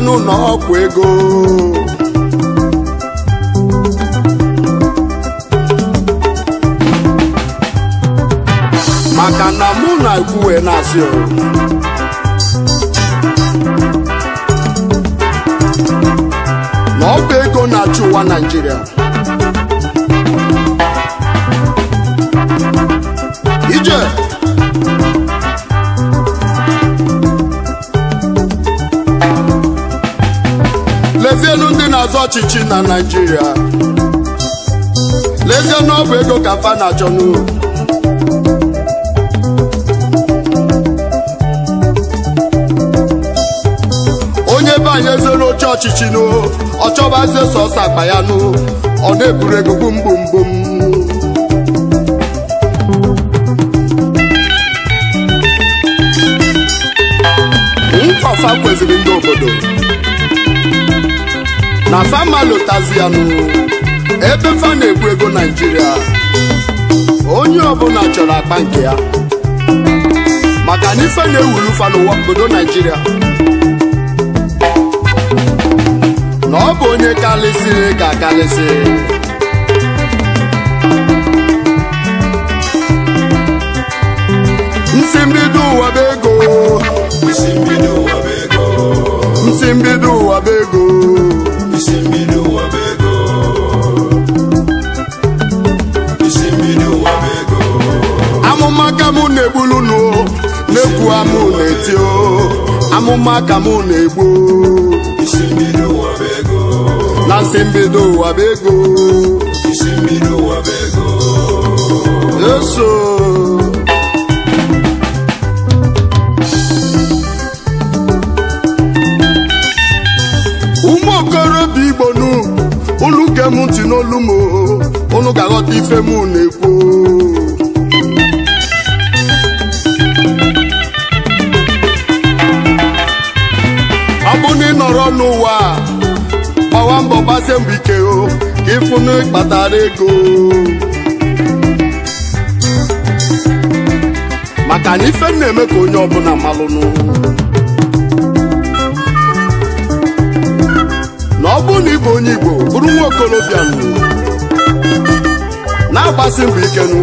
no nó na ọchịchị na naijiria lezie na ego ka fa na-achọ onye banye anyị oche ọchịchị n'o ọ chọbazie sọsọ akpa ya n'ụ ọ na-eburu ego gbumgbumgbum mkpọfa kweziri ndị obodo na famalotazianu ebe fana na-ekwu ego naijiria onye ọbụla chọrọ akpa nke ya maka na ife na-ewuru fa n'ụwa obodo naijiria na ọ bụ onye karịsịrị ka akarịsị nsi mbido ụwa bụ ego nsi mbido ụwa bụ ego na-egbulu nụ na-ekwu amụ na-eti o amụma ka mụ na-egbu na nsị mbido ụwa bụ ego eso ụmụokorobịa igbo nu unu gee ntị n'olu m unu ga-aghọta ife m na-ekwu n'ụwa gbawa mbọ gbasie mbọ ike o ka ịfụnụ ịkpatara ego maka na ife na-eme ka onye ọbụla malụnụ na ọ bụ na ịbụ onye Igbo bụrụ nwa okorobịa na-agbasi mbọ ikenụ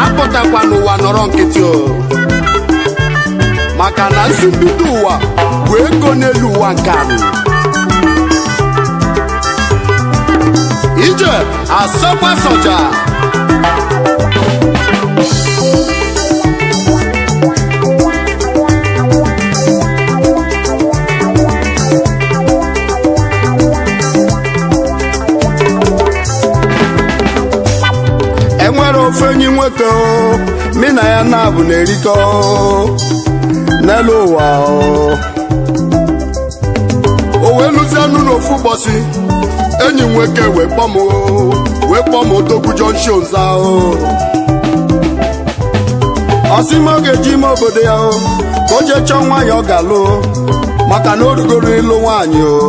apụtakwa n'ụwa nọrọ nkịtị o maka na nzubido ụwa bụ ego n'elu ụwa nke anyị ije asọkwa soja enwere ofe enyi nweta o na ya na abụ na erikọ n'elu ụwa o wee lụzie n'ụlọ ofu ụbọchị enyi m nwoke wee kpọ m wee kpọọ m odogwu junction ahụ ọ m ọ ga-eji ime obodo ya ka o jee chọọ nwaanyị ọ ga-alụ maka na o rugoro ịlụ nwaanyị o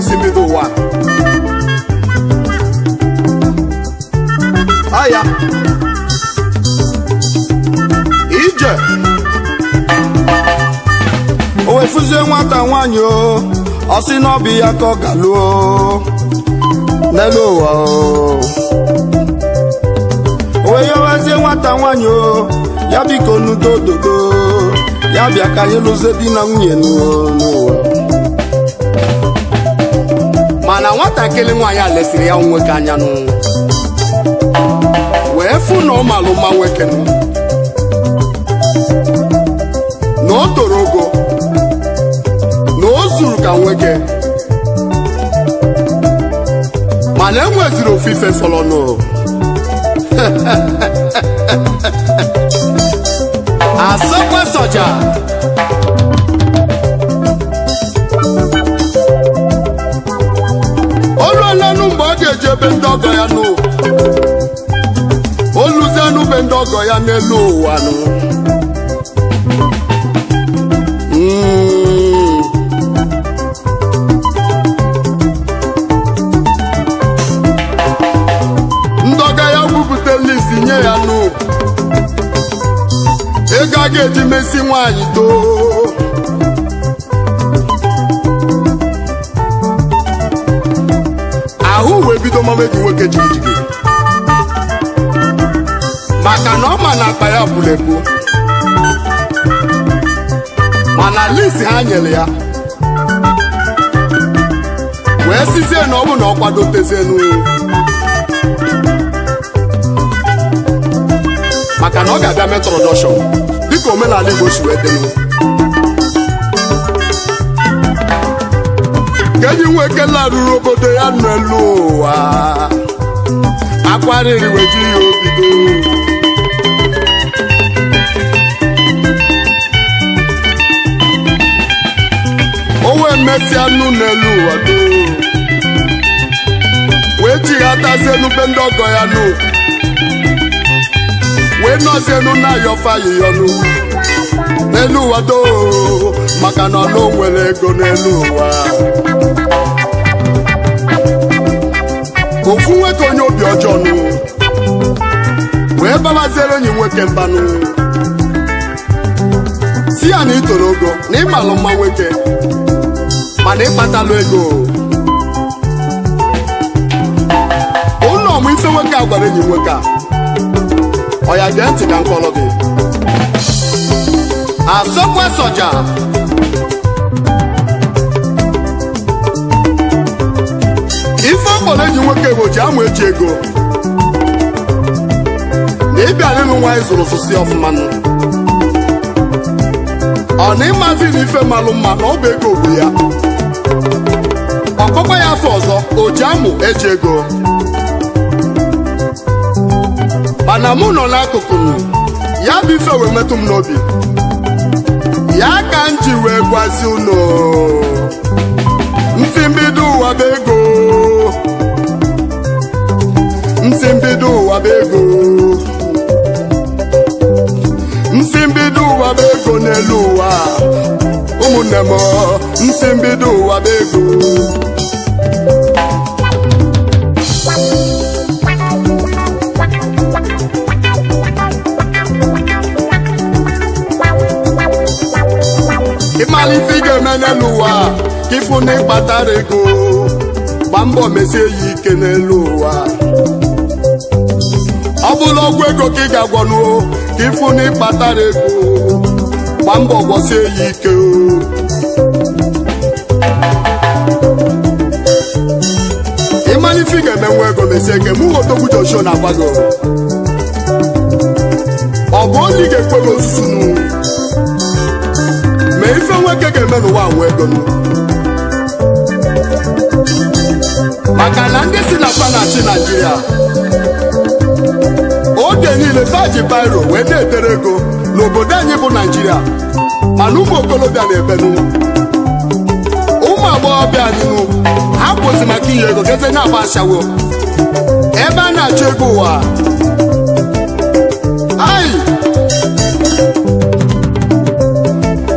nsimbido ụwa aya ije o wefuzie nwata nwaanyị o ọ sị na ọ bụ ya ka ọ galuo n'elu ụwa o wee yewezie nwata nwaanyị o ya biko nudo dododo ya bịa ka anyị lụzie di na nwunye n'ụwa mana nwatakịrị nwaanyị a lesiri ya nwoke anya nụ wee fụ na ọ malụ mma nwoke nụ na o toro ogo na o zuru ka nwoke mana enweziri ofufe fọrọ nụ asọkwe sọja. ọlanụ mgbe ọ ga-eji ebe ndị ọgọ ya n'ụwa oluzianụ be ndị ọgọ ya n'elu ụwa nụ hmm. ndọga ya gwupụta nye ya nụ ego a ga-eji mesi nwaanyị too ahụ wee bido mama gị nwoke jigijigi maka na ọ ma na akpa ya bụrụ ebu mana lisi ha nyere ya wee sizie na ọ bụ na ọ kwadotezie n'ụlọ maka na ọ ga-abịa metrodọshọn dịka omenala Igbo si wee dị ka ji nweke ekela ruru obodo ya nọ elu ụwa akwarịrị weji ya obido onwe mesịa anụ n'elu ụwa wee jighatazie n'ube ndị ọgọ ya nụ wee nọzienụ na-ayọfa yiyọnụ n'elu ụwa doo maka na ọlụ nwere ego n'elu ụwa ofu nwoke onye obi ọjọọ nụ wee babaziere onye nwoke mbanụ si ya na itoro toro ogo na ịmalụ mma nwoke mana ịkpatalụ ego ụlọ ọmụ ife nwoke a gwara enyi nwoke a ọ ya gee ntị ka nkọlọ gị asọkwa soja ọbọla eji nwoke ji amụ echi ego na ịbịa n'elu nwa anyị zụrụ sụsi ọfụma nụ ọ na ịmazi na ife malụ mma na ọ bụ ego bụ ya ọkpọkpa ya afọ ọzọ o ji amụ eji ego mana mụ nọ n'akụkụ ya bụ ife wee metụ m n'obi ya ka m ji wee gwazi unu mbido ụwa bụ ego nsi mbido ụwa bụ ego nsi mbido ụwa bụ ego n'elu ụwa ụmụnne m nsi mbido ụwa bụ ego ịmalite ife ị ga-eme n'elu ụwa ka ịfụ na ịkpatara ego gbaa mbọ mesie ya ike n'elu ụwa ọ bụla ọgwụ ego ka ị ga-agwọnuo ka ịfụ na ịkpatara ego gba mbọ gwasie ya ike ịmana ife ị ga-emenwe ego mesie ike mụ Odogwu Joshua na-agwa gị ọ bụ onye ị ga-ekwe gị ozuzu nu ma ife nwoke ga-eme n'ụwa nwe ego nụ maka na ndị si na panachi Naijiria oge niile taji bairo wee na-etere ego n'obodo anyị bụ naijiria mana ụmụ okolobịa na-ebenu ụmụ agbọghọbịa anyị n'ugwu ha kwụsị maka iyi ego geze na-agba ebe a na-achọ ego ụwa ai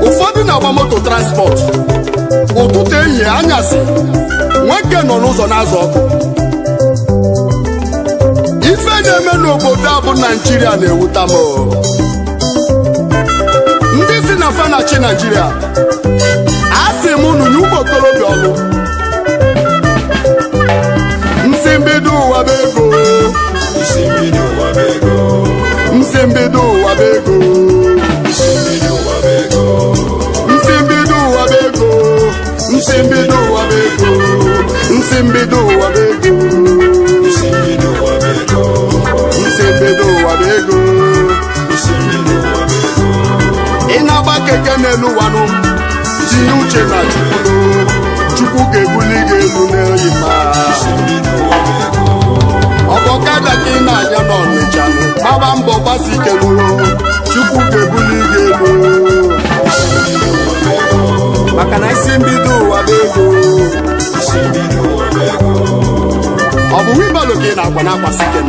ụfọdụ na-agba moto transport ụtụtụ ehihie anyasị nwoke nọ n'ụzọ na azụ ọkụ na-eme n'obodo a bụ naijiria na-ewuta m ndị si na fanachi naijiria a sị m unu nye ụmụ okorobịa ọlụ nsi mbido ụwa bụ ego nsi mbido ụwa bụ ego nsi mbido ụwa bụ ego nsi mbido ụwa bụ ego nsi mbido elu wanụ tinye uche na chukwu chukwu ga-ebuli gị elu n'eyi ma ọ bụ ọkada ka ị na-anya n'ọnịcha gbaba mbọ gbasi ike chukwu ga-ebuli gị elu maka na isi mbido ụwa bụ ego ọ bụ wibalo ka na-akwa na-akwasị ike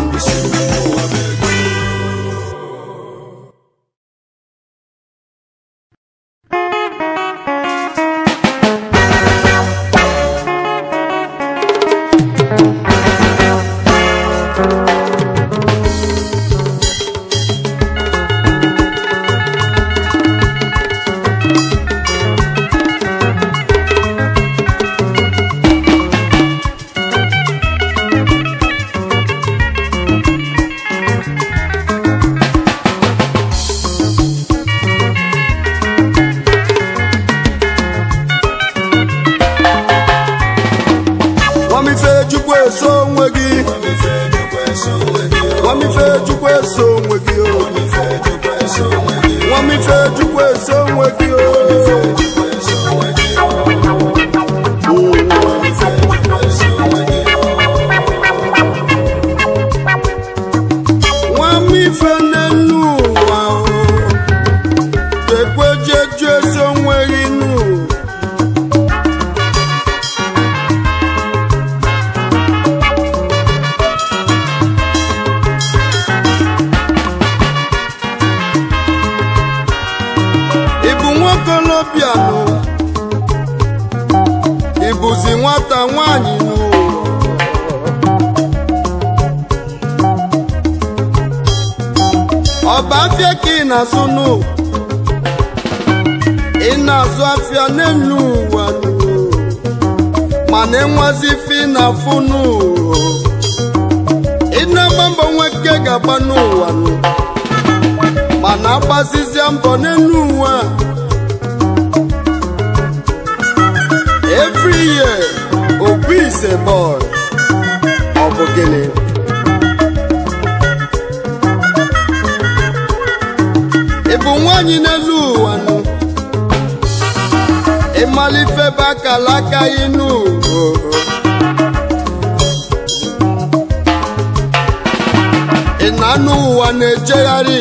anụ ụwa na-ejegharị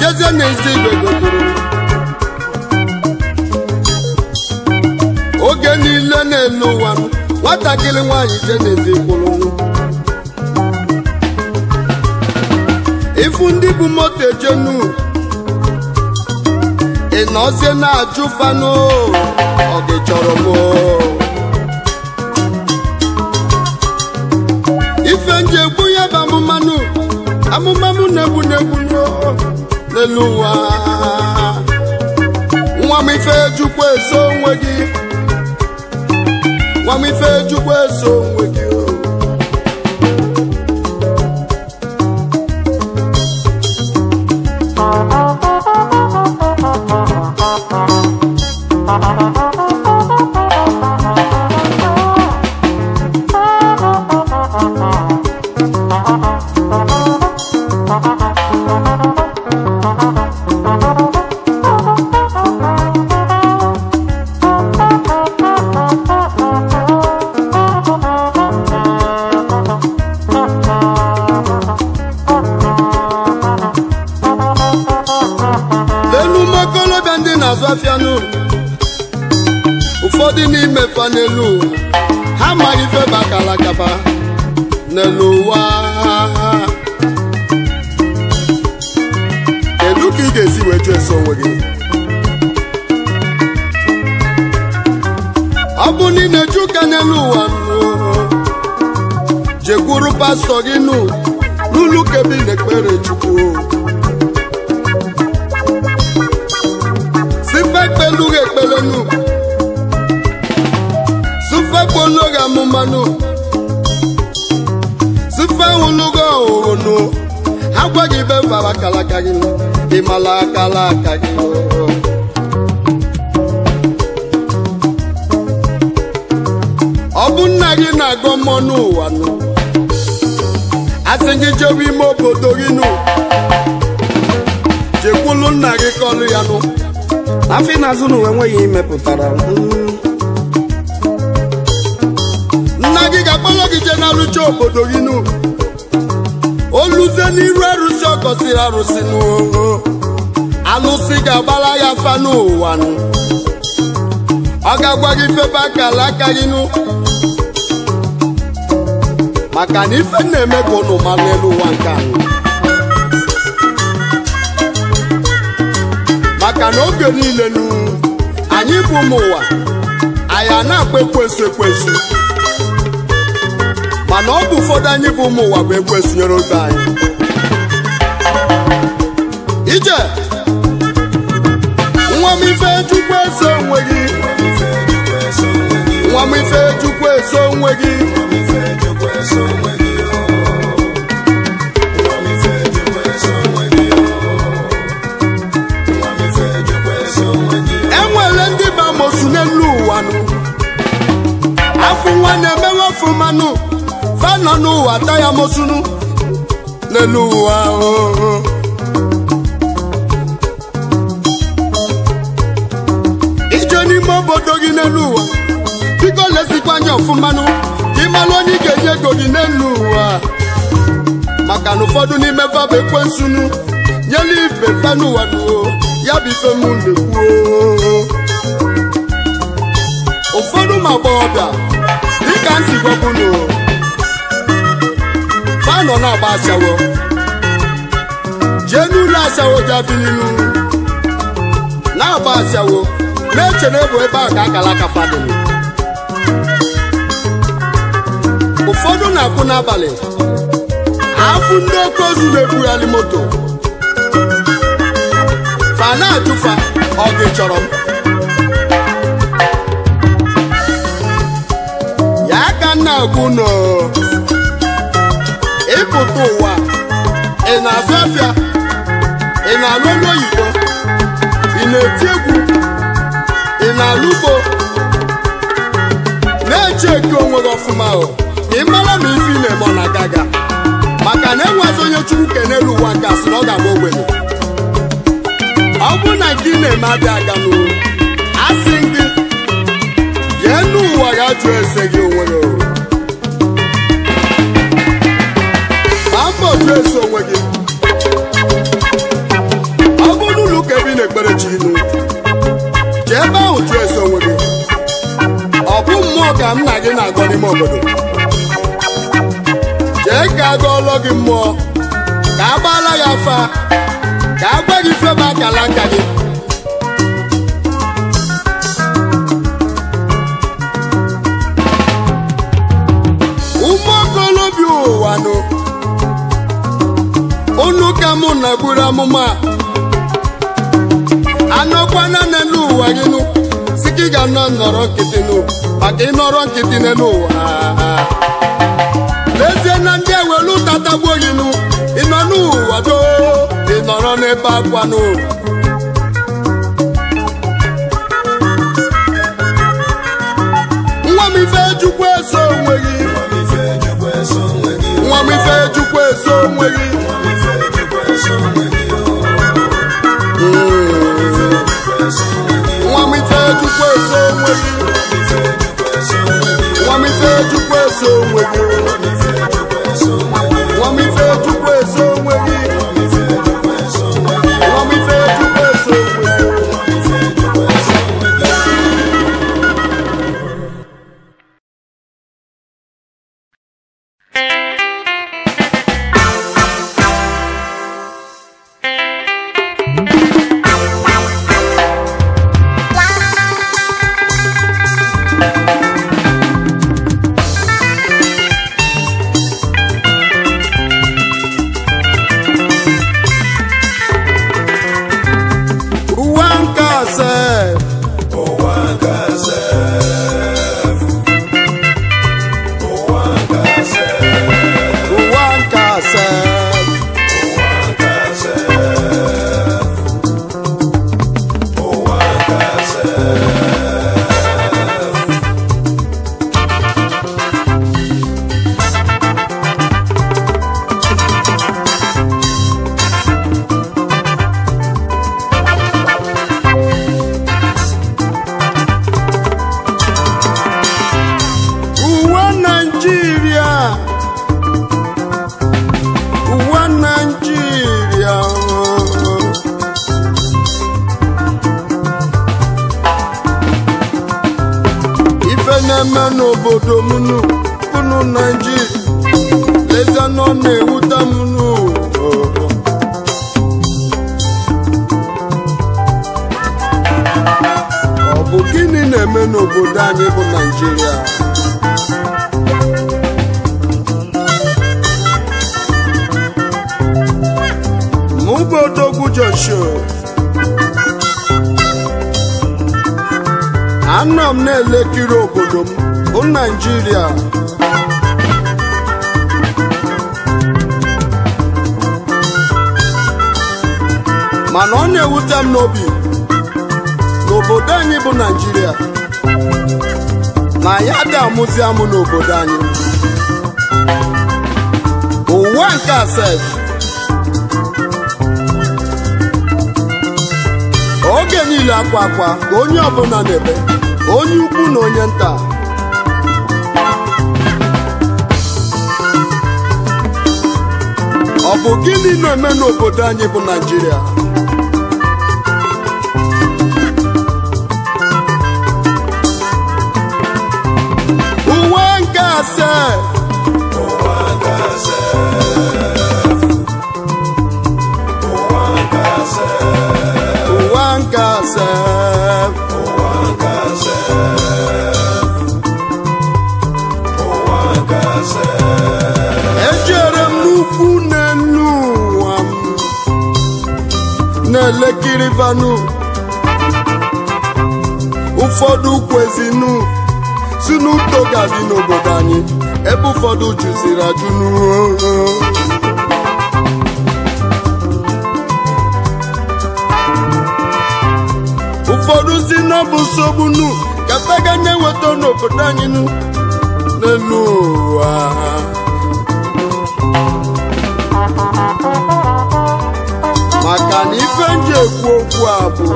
jezie n'ezi igbe oge niile n'elu ụwa nwatakịrị nwanyị je n'ezi ifu ndị bụ moto ejenu ị nọzie na-ajụ fanụ ọ chọrọ m ife nje ekwu ya bụ mmanụ amụma mụ na-egbu na-egbu n'elu ụwa nwa m ife jukwa eso onwe gị nwa m ife jukwa eso onwe gị ụmụ okorobịa ndị na-azụ afịa n'ụwa ụfọdụ n'ime fa n'elu ha amaghị feba kalakaba n'elu ụwa kedu ka ị ga-esi wee jụ eso onwe gị ọ bụ na ị na-eju ụka n'elu ụwa jekwuru pastọ gị n'ụlọ ụka na ekpere chukwu gbulughị ekpelenu sufe gbolughị amụmanụ sufe hụlughị ọhụrụ agwaghị ibe fara kalaka gị ịmala akala aka gị ọ bụ nna gị na-agọ mmụọ n'ụwa nụ asị gị jewe ime obodo gị nụ jekwulu nna gị kọlụ ya nụ afọ ịnazụ n'ụwa enweghị imepụtara nna gị ga-akpọrọ gị jee na-arụcha obodo gị nu oluze n'iru arụsị ọ gọsiri arụsị n'ụwa alụsị ga-agbara ya fa n'ụwa ọ ga-agwa gị febe aka ala aka gị nụ maka na ife na-eme ka ụnụ ma n'elu ụwa nke maka na oge niile nụ anyị bụ ụmụ ụwa anyị a na-akpa ekwensu ekwesị mana ọ bụ ụfọdụ anyị bụ ụmụ ụwa bụ ekwensu nyere oge anyị ije nwa m ife chukwu eso onwe nwa m ife eso onwe gị bụ nwa na-emewe ofumanụ fa n'ụwa ata ya mosunu n'elu ụwa oh, oh. ije n'ime obodo gị n'elu ụwa biko lezikwa anya ọfụmanụ ka ịmalụ onye ị ga-enye ego gị n'elu ụwa maka na ụfọdụ n'ime fabụ ekwensunu nyelu ibe fanụwa duo oh. ya bụ ife m na-ekwuo ụfọdụ ma agbọghọbịa ka m si gwọkwunu nọ na-agba asawo jee n'ụlọ asawo jabi n'ilu na-agba asawo na-eche na ebu ebe ahụ ka akala aka ụfọdụ na-akwụ n'abalị afụ ndị oke ozu na-ebugharị moto fa na-atụfa ọ gị chọrọ m na-ekwuno ịpụta ụwa ị na afịa afịa ị na-alụ onye oyibo ị na-eti egwu ị na-alụ ugbo na-eche eke onwe gị ọfụma ka ị mara ma ife na-eme ọ na-aga aga maka na enwezi onye chukwu ke n'elu ụwa nke asị na ọ ga-agba ogbenye ọ bụrụ na gị na-eme abịa aga n'ụwa asị gị jee n'ụwa ga jụọ ese gị onwe gị na-epresi onwe gị ọ bụrụ n'ụlọ ụka ebe na-ekpere chi ilu jee ebe ahụ presi onwe gị ọ bụ mmụọ ka nna gị na-agọ n'ime obodo jee ka a gụọlọ gị mmụọ ka a gbaala ya afa ka a gwa gị ife akala nka gị mụ na buru amụma anọkwana n'elu ụwa gị nụ si gị ị ga-anọ nọrọ nkịtị nụ maka ịnọrọ nkịtị n'elu ụwa n'ezie na ndị ewelu tatagbuo gị nụ ịnọ n'ụwa doo ị nọrọ n'ebe akwa nụ nwa m ife ejukwa eso onwe gị nwa m ife ejukwa eso onwe gị nwa mita ejukwa eso onwe gị Joshua anọ m na-elekiri obodo m bụ Naịjirịa mana ọ na-ewute m n'obi n'obodo anyị bụ naijiria ma ya dị amụzi amụ n'obodo anyị ụwa nke asef yiri akwa akwa ka onye ọbụla na-ebe onye ukwu na onye nta ọ bụ gịnị na-eme n'obodo anyị bụ Naijiria? uwe nke asee na-elekiri vanụ ụfọdụ kwezinu si n'uto ga-adị n'obodo anyị ebe ụfọdụ jụziri ajụ n'uo ụfọdụ si na nsogbu nu kata na-eweta n'obodo anyị n'elu ụwa ife m ji ekwu okwu a bụ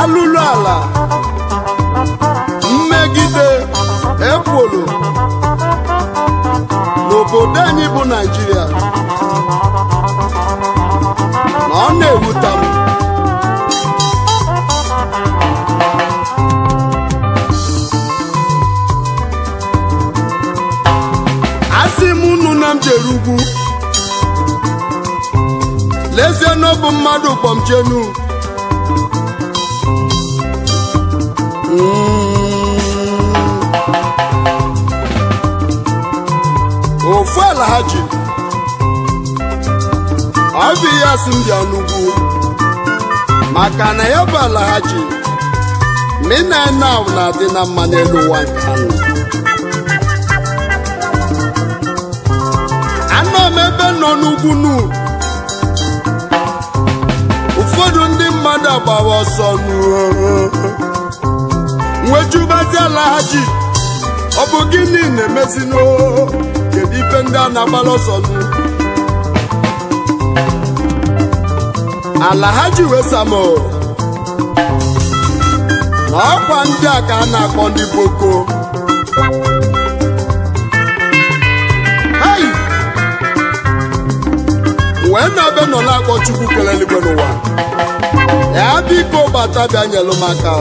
alụlụ ala mmegide ekworo n'obodo anyị bụ naijiria n'ezie na mmadụ kpọmchenu hmm. ofu ala ha ji ọ asị ndị maka na ya bụ ala ha ji mina na ahụ na-adị na mma n'elu ụwa nke anọ m ebe nọ n'ugwu n'ugwu mmadụ agbawa ọsọ nwejubaziala ha ji ọ bụ gịnị na-emezino kedu ife ndị a na-agbara ọsọ nụ wesamo na ọkwa ndị a ka a na-akpọ ndị boko wee na ya biko bata bịanyelụ maka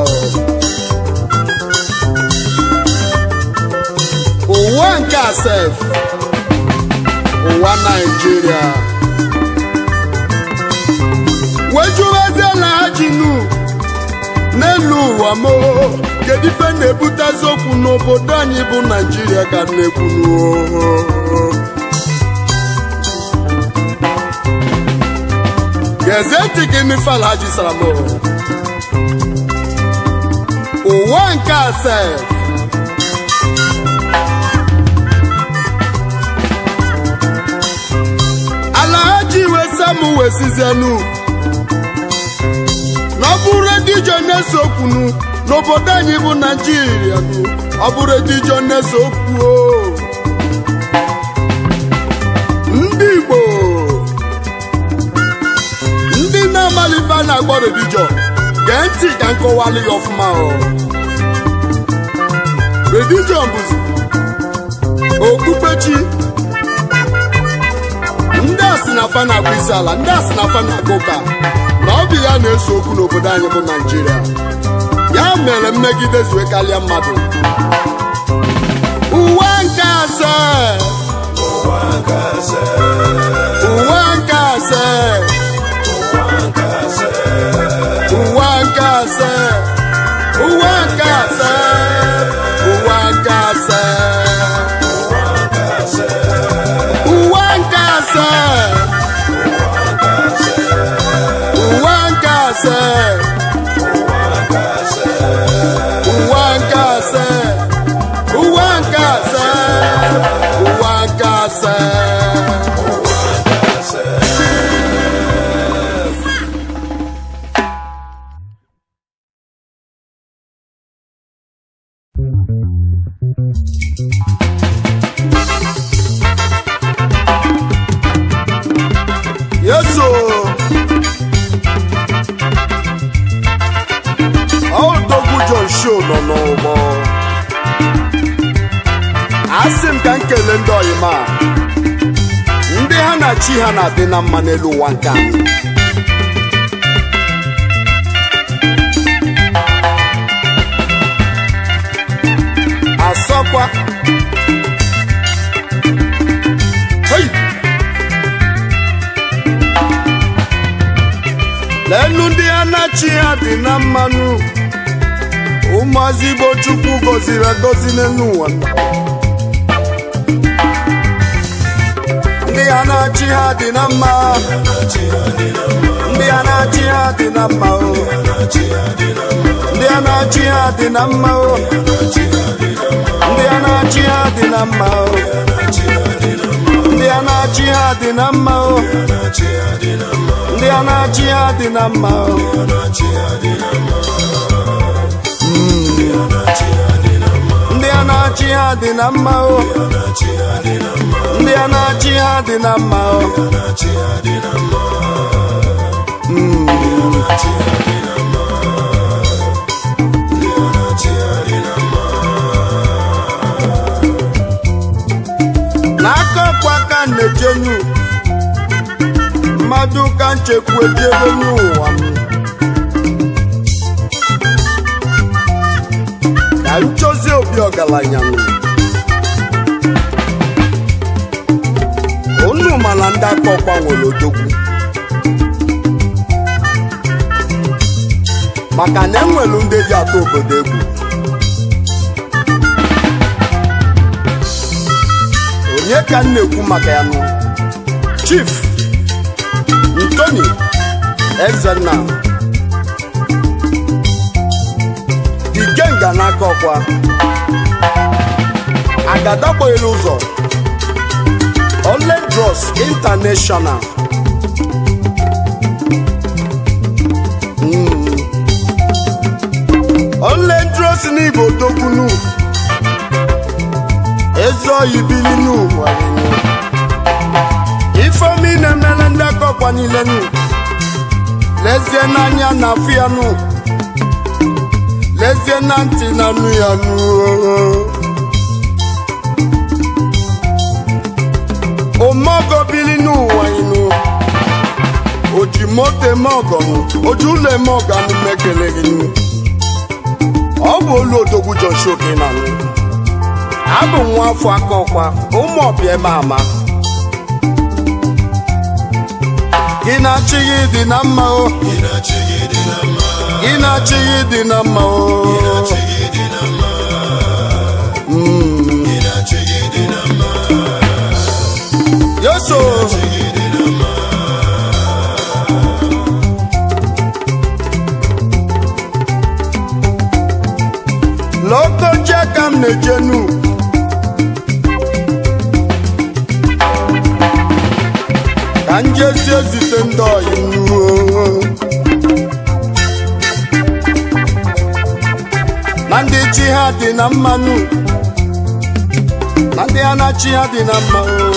ụwa nke asef ụwa naijiria wejuwezela ajinu n'elu ụwa mo kedu ife na ebute eziokwu n'obodo anyị bụ naijiria ka na-ekwunuo ezetik ntị gị mifala jisara m ụwa nke ase alahaji wesa m wesizenu na ọ bụrụ edijo na okwunu n'obodo anyị bụ naijiria ọ bụrụ na a na-akpọ redijon gee ntị ka nkọwalụ ya ọfụma redijon bụzi okpukpechi ndị a na fa na-akpụ isi ala ndị a na na-akpụ ụka na ọ bụ ya na-eso okwu n'obodo anyị bụ naijiria ya mere mmegide zue karịa mmadụ uwe nke ase. uwe nke asaa uwakase uwakase uwakase. na mma n'elu ụwa nke a dị na mma o ndị a na-achị ha dị na mma o ndị a na-achị ha dị na mma o ndị a na-achị ha dị na mma o hmm. ndị a na-achị ha dị na mma o ndị a na-achị ha dị na mma o hmm. na-ejenu mmadụ ka nchekwu ejebe n'ụwa m ka nchọzi obi ọgaranya m unu mana ndị ọkwa nwere odogwu maka na enwere ndị ji atọ obodo egwu nye ka m na-ekwu maka ya nụ Chief Ntoni Ezenna Ikenga n'aka ọkwa agadakpoghela ụzọ Oledros International hmm. Oledros n'Igbo ezuohi bili n'ụwa ifeomi na-emere ndị aka niile nụ lezie n'anya na afọ ya nụ lezie na ntị na anụ ya nụ oh, oh. omeogo bili n'ụwa ịnụ oji moto eme ọgọnụ oji ụlọ eme ọganụ mekele gị nụ ọ bụ olu odogwu na abụ m nwa afọ aka ọkwa ụmụ ọbịa ebe ama gị na-achịghị dị na mma o gị na-achịghị dị na mma o yoso ka m na ka njezi ezite ndị nruo na ndị chi ha dị na mmanụ na ndị anachi ha dị na mmanụ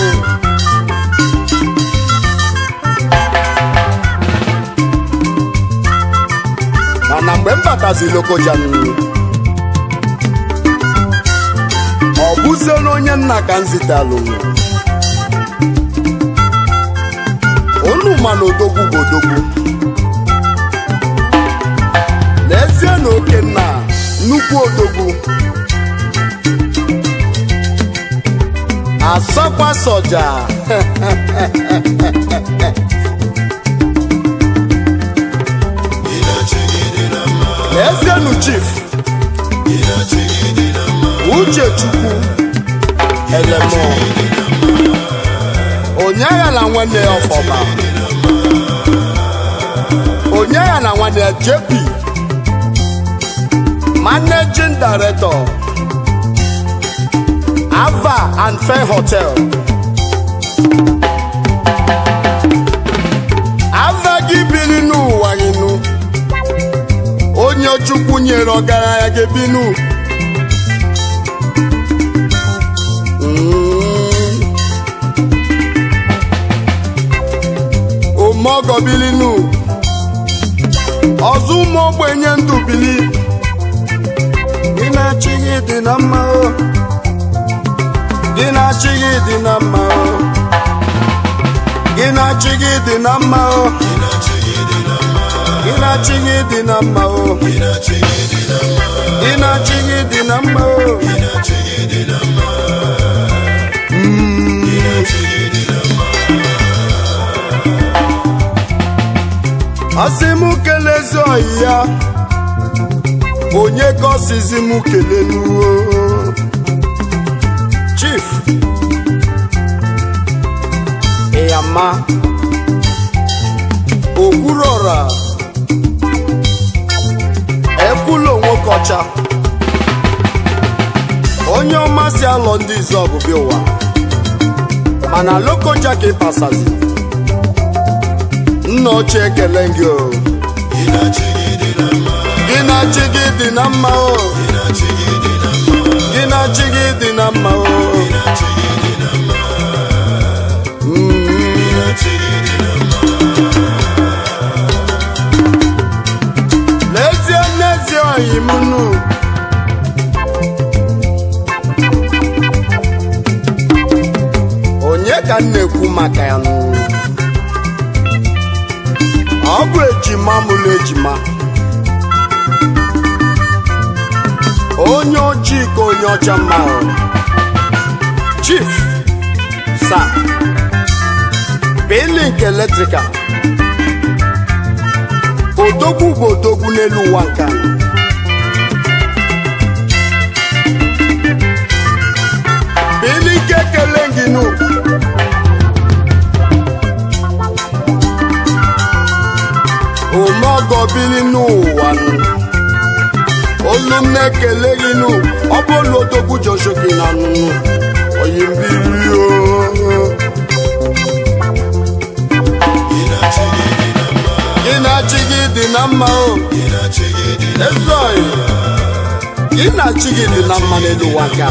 mana mgbe m batazi Lokoja ọ bụzie n'onye nna ka m zitalụ mma na odogwu bụ odogwu n'ezie na okenna nnukwu odogwu asakwa soja n'ezienu chief uchechukwu elemo onye aghala nwanne ya ọfọma onye ya na nwanne JP managing director Ava and Fair Hotel Ava gị biri n'ụwa inu onye Chukwu nyere ọgaranya gị binu omogọ mm. biri n'ụwa ọzọ ụmụ ogbenye ndụ bili gị na-achị gị dị na mma gị na-achị gị dị na mma asị m kelezi ọyị ya onye ka ọsizi m keleluo chief ịyama okwuruọra ekwulo onye ọma si alọ ndị izu ọbụbịa ụwa mana lokoja ka ịpasazi nna ochie ekele gị o gị na gị dị na mma o gị na gị dị na mma o onye ọcha mma chief sa bilink eletrikal odogwu bụ odogwu n'elu ụwa nka bilink ekele gị n'ukwu omeọgọ bili n'ụwa nụ olu m na-ekele gị nụ ọ bụ olu odogwu joshoki na nụnụ oyi mbiri gị na-achị gị dị na mma o ezeoyi gị na-achị gị dị na mma n'elu ụwa ka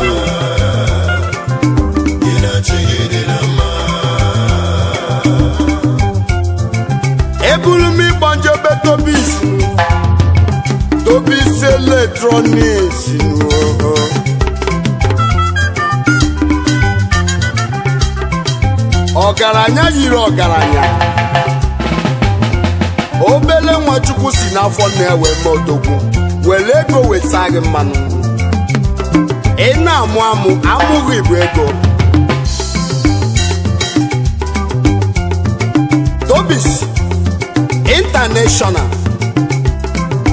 eburu m ịgbọ njọ betobis ọgaranya yiri ọgaranya obele nwachukwu si n'afọ na-ewe odogwu were ego weta gị mmanụ ị na-amụ amụ amụghị bụ ego Tobi's international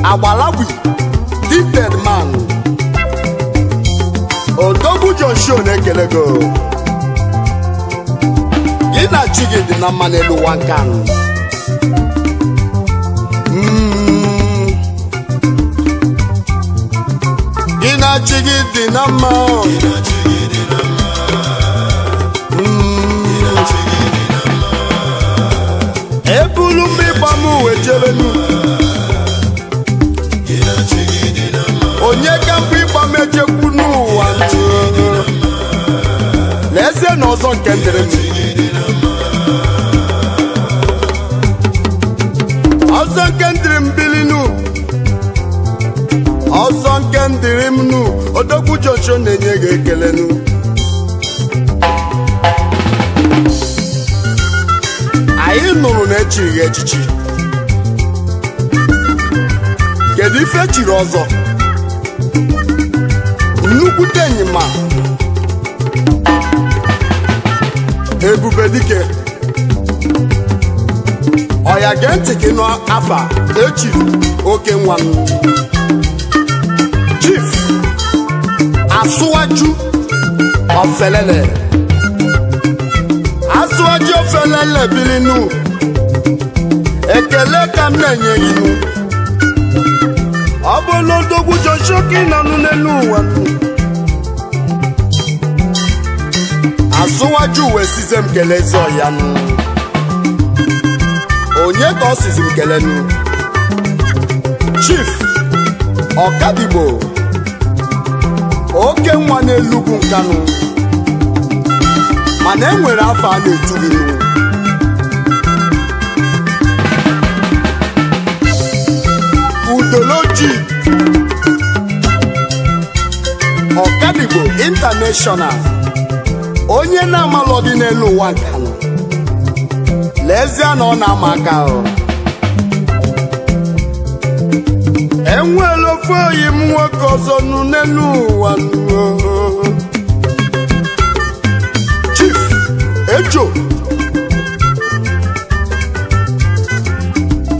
agbalagwi gifted man odogwu Joshua na-ekele go gị na chi dị na mmanụ elu nwa hmm. gị na chi dị na mma hmm. ebulu m ịgba m uwe jebe n'ugwu onye ka mbụ ịgba mejekwu n'ụwa n'ezie na ọzọ nke dịrị ọzọ nke ndịrị m bili nụ ọzọ nke ndịrị m nụ odogwu joshua na-enye gị ekele nụ. anyị nụrụ na echighị echichi kedu ife e chiri ọzọ nnukwute enyima ebube dike ọya gee ntị gị n'afa echiri oke nwa m chief asụwaju ofelele asụwaju ofelele bilinu ekele ka m na-enye ọ bụla odogwu joshoki nọnụ n'elu ụwa azụwaju uwe size m kele ezi onye ka ọ sizi m kelenu chief ọkadigbo oke nwa n'elugwu nkanụ mana enwere afọ a na-etu gị ideology ọkadigbo international onye na-amalụ n'elu ụwa nke lezie na ọ na-ama aka ahụ ofe oyi m nwoke ọzọ n'elu ụwa chief ejo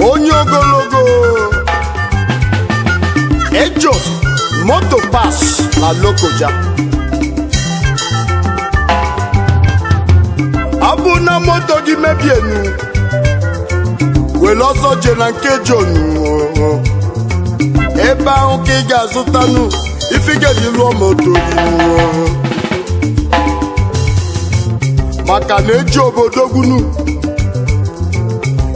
onye ogologo moto pas na Lokoja ọ na moto gị mebienu were ọsọ je na nke jonu ebe ahụ ka ị ga-azụtanụ ifigedi lụọ moto gị maka na eji obodo gwunu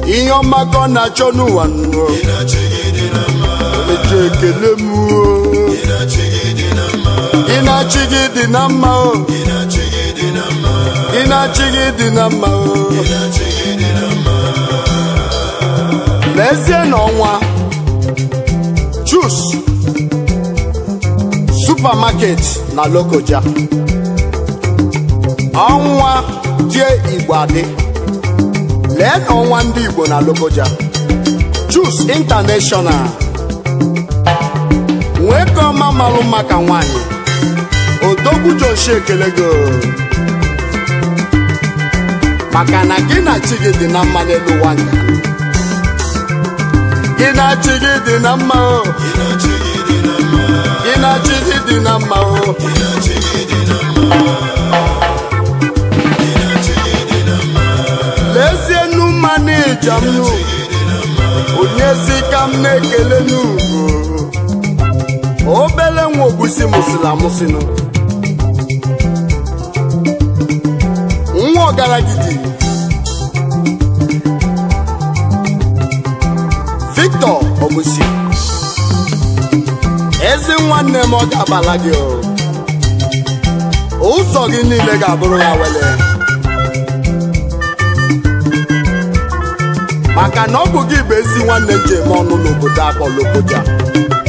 ihe ọma ọ na-achọ n'ụwa eji ekele m ị na-achị gị dị na mma o ị na-achị gị dị na mma o n'ezie n'ọnwa chus supermarket na lokoja ọnwa die igbo adị lee n'ọnwa ndị igbo na lokoja chus international ọma malụ maka nwanyị odogwu joshi ekele go maka na gị na chi gị dị na mma n'elu ụwa gị na chi gị dị na mma o gị na chi gị dị na mma o lezie nu mmanụ ijom nu onye si ka m na-ekele n'ugwu obele nwa ogbusi mụsịrị amụsịnụ nwa ọgaragidi Victor Ogbusi eze nwanne m ọ ga-abala gị ụzọ gị niile ga-abụrụ ya wele maka na ọ bụ gị bụ ezi nwanne m eme ọnụ n'obodo akpọlọobodo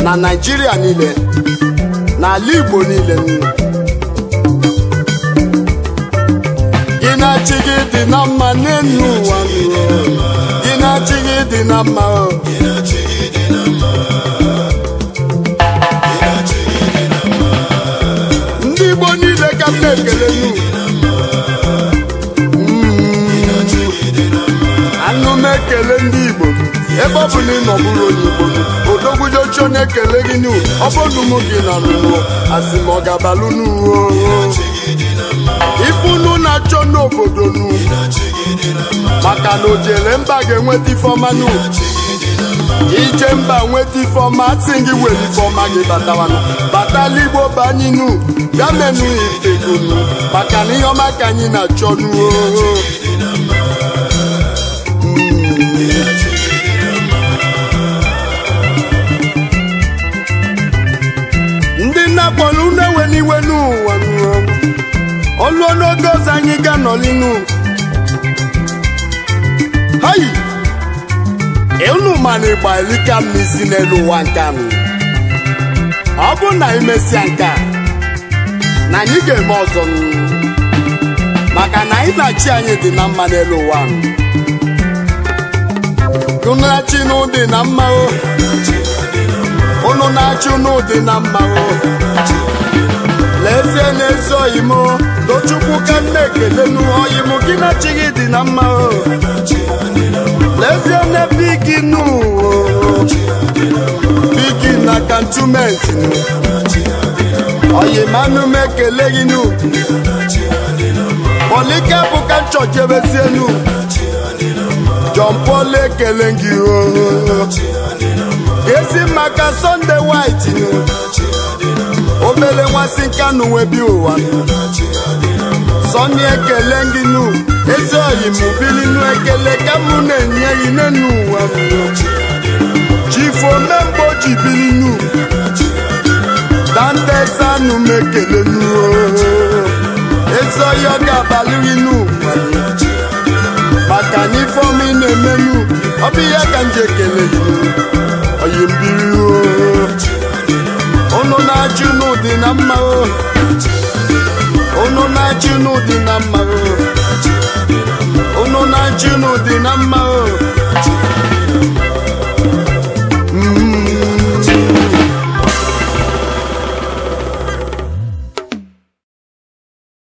na Naijiria niile n'ala Igbo niile gị na-achị gị dị na mma n'elu ụwa gị na-achị gị dị na mma na-ekele ndị Igbo ebe ọ bụ na ị nọbụrụ onye Igbo odogwujochi onye ekele gị n'u ọ bụrụ gị na nụnụ asị m ọ ga-abalụ n'uwe na-achọ n'obodo nụ maka na o jere mba ga-enweta ifeọma ije mba nweta ifeọma asị gị were ifeọma gị batawanụ batala igbo banyinu bịa maka na ihe ọma ka anyị na-achọ nuo ndị nna-akpọrọ unu ewe n'iwe n'ụwa olu oge ọzọ anyị ga n'olinu hayi unu ma na ịgba elika m n'isi n'elu ụwa nke anụ ọ bụ na imesịa nke a na anyị ga-eme ọzọ maka na anyị na chi anyị dị na mma n'elu ụwa anụ unu na-achị n'ụdị na mma unu na-achị n'ụdị na mma lezie na oyi m tochukwu ka nne ekele n'oyi m gị na-achịghị dị na mma lezie na n'ebe gị n'ụwa bigi na kantumenti oyi manụ m ekele gị n'ugwu polike bụ ka nchọ jebezie n'ugwu John Paul ekele gị o ezi maka sọnde white obele nwasị nka na uwe bi ụwa Sonny ekele gị nu ezi oyi m bili nu ekele ka mụ na-enye gị n'enu ụwa chifo memgbe ji bili nu dantesanụ m ekele nu ezi oyi ọ ga-abalị n'ụwa ka na ifeọma ị na-emelu ọ bụ ihe ka m ekele gị oyi mbiri unu na-achị n'ụdị na mma unu na-achị n'ụdị na mma unu na-achị n'ụdị na mma